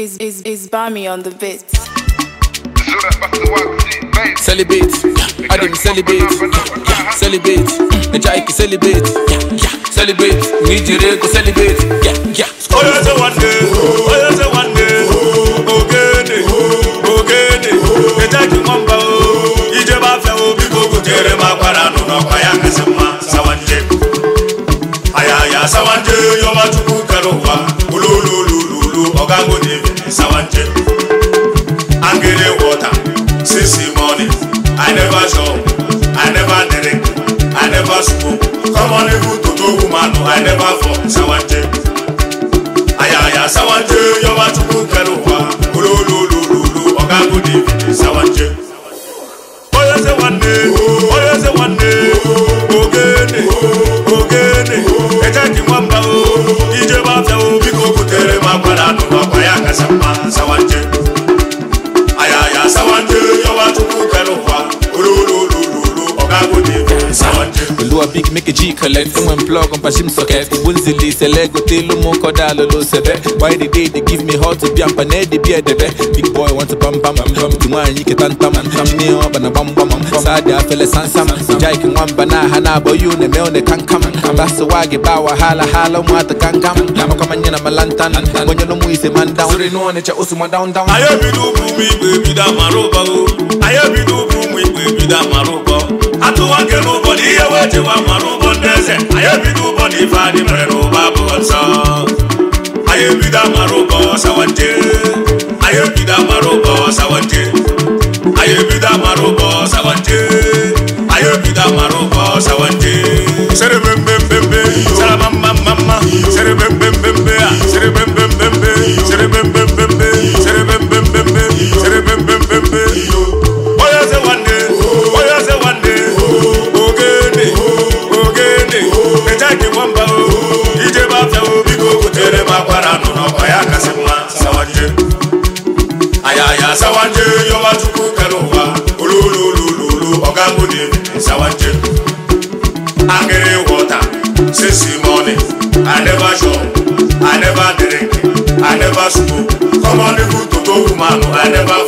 is is is Bami on the beat. Celebrate, I didn't celebrate. Celebrate, the jaiki celebrate. Celebrate, need you to celebrate. Yeah, yeah. Oh, that's a one day. Oh, that's a one day. Oh, okay, oh, okay. The jaiki mamba. Ije ba fe o bi gogo jere ma para no no kwaya kesema sawanje. Aya ya sawanje yo ma tuku karuwa. Olololololo ogango devi sawanje angele water since the i never chop i never drink i never smoke common even toto woman i never fall sawanje. Below a big make a G collect from when plug on Pashim socket. Ubunzili select with the Lumo Kodalo Seve. Why the day they give me hot to be and pane the beer Big boy want to bam bam bam bam. Tuma and Yiki tan tam tam me up and a bam bam bam. Sada fele san sam. Jaik and one bana hana boy you ne me on the can come. That's the wagi bawa hala hala mwata can come. Lama kama nyana malantan. When you know mu is a man down. Suri no one cha usu ma down down. Ayo bidu bumi baby da maroba go. Ayo bidu wa mɔnu bɔ dɛsɛ a ye bi du bɔ ni da mɔnu bɔ sawa ayaya sawanje yọmachukwu kere ụwa olololololo ọgago david sawanje agịrị wọta sesi mọni i never chop i never drink i never smoke common people to go woman i never